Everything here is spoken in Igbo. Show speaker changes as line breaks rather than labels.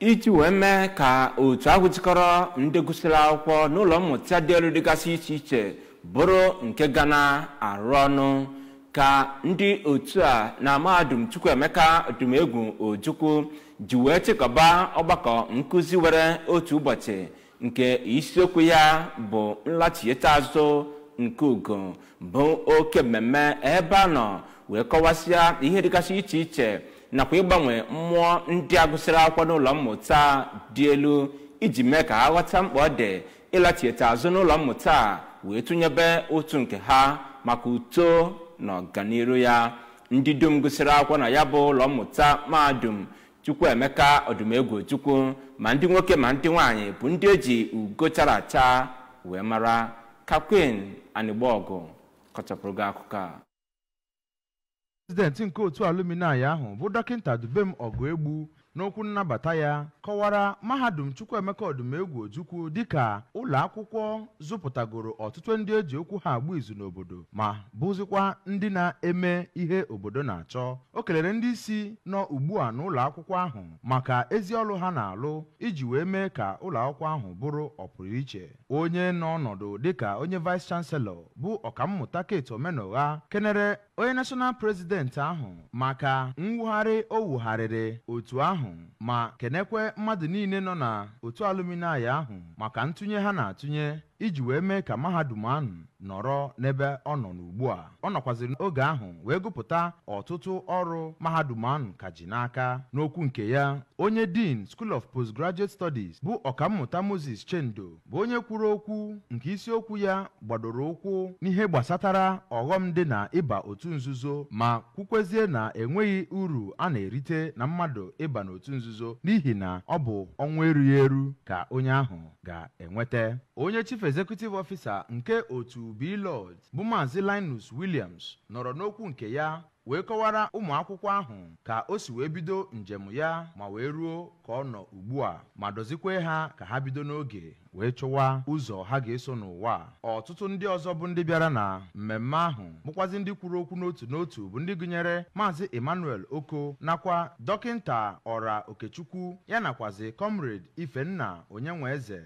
iji wee mee ka otu ahụ jikọrọ ndị gụsịrị akwụkwọ n'ụlọ mmụta dị elu dịgasị iche iche bụrụ nke ga na-arụ ọnụ ka ndị otu a na mahadum chukwuemeka egwu ojukwu ji wee chịkọba ọgbakọ nkụzi were otu ụbọchị nke isiokwu ya bụ nlachieta azụ nke ugo bụ oke mmemme ebe a nọ wee kọwasịa ihe dịgasị iche iche nakwa ịgbanwe mmụọ ndị a gụsịrị akwụkwọ n'ụlọ mmụta dị elu iji mee ka ha ghọta mkpa ọ dị ịlachieta azụ n'ụlọ mmụta a wee tụnyebe otu nke ha maka uto na ọganiru ya ndị dum gụsịrị akwụkwọ na ya bụ ụlọ mmụta mahadum chukwuemeka ọdụmegwu chukwu ma ndị nwoke ma ndị nwaanyị bụ ndị eji ugo chara acha wee mara kakwin anịgba ọgụ kọchapụrụ gị akụkọ a
prezidenti nke otu alumni ahụ bụ dọkịta dubem ọgụ egbu n'okwu nnabata ya kọwara mahadum chukwuemeka odumegwu ojukwu dịka ụlọ akwụkwọ zụpụtagoro ọtụtụ ndị eji okwu ha agba izu n'obodo ma bụzikwa ndị na-eme ihe obodo na-achọ o kelere ndị isi nọ ugbu a n'ụlọ akwụkwọ ahụ maka ezi ọrụ ha na-alụ iji wee mee ka ụlọ akwụkwọ ahụ bụrụ ọpụrụiche onye n'ọnọdụ dịka onye vice chanselọ bụ ọkammụta Kate Omenụgha kenere onye national prezidenti ahụ maka mwugharị o wugharịrị otu ahụ ma kenekwe mmadụ niile nọ na otu alụminayi ahụ maka ntụnye ha na-atụnye iji wee mee ka mahadum ahụ nọrọ n'ebe ọ nọ n'ugbu a ọ nọkwaziri n'oge ahụ wee gụpụta ọtụtụ ọrụ mahadum ahụ ka ji n'aka n'okwu nke ya onye din school of postgraduate studies bụ ọkammụta moses chendo bụ onye kwuru okwu nke isiokwu ya gbadoro ụkwụ n'ihe gbasatara ọghọm dị na ịba otu nzuzo ma kwukwezie na enweghị uru a na-erite na mmadụ ịba n'otu nzuzo n'ihi na ọ bụ ọnwa erughị eru ka onye ahụ ga-enweta onye chief executive ofisa nke otu Beelord bụ Maazị Linus Williams nọrọ n'okwu nke ya wee kọwara ụmụ akwụkwọ ahụ ka o si wee bido njem ya ma wee ruo ka ọ nọ ugbu a ma dozikwe ha ka ha bido n'oge wee chụwa ụzọ ha ga-eso n'ụwa ọtụtụ ndị ọzọ bụ ndị bịara na mmemme ahụ bụkwazi ndị kwuru okwu n'otu n'otu bụ ndị gụnyere maazị Emmanuel Oko nakwa dọkịnta ọra Okechukwu ya nakwazi kọmrade Ifenna Onyenweeze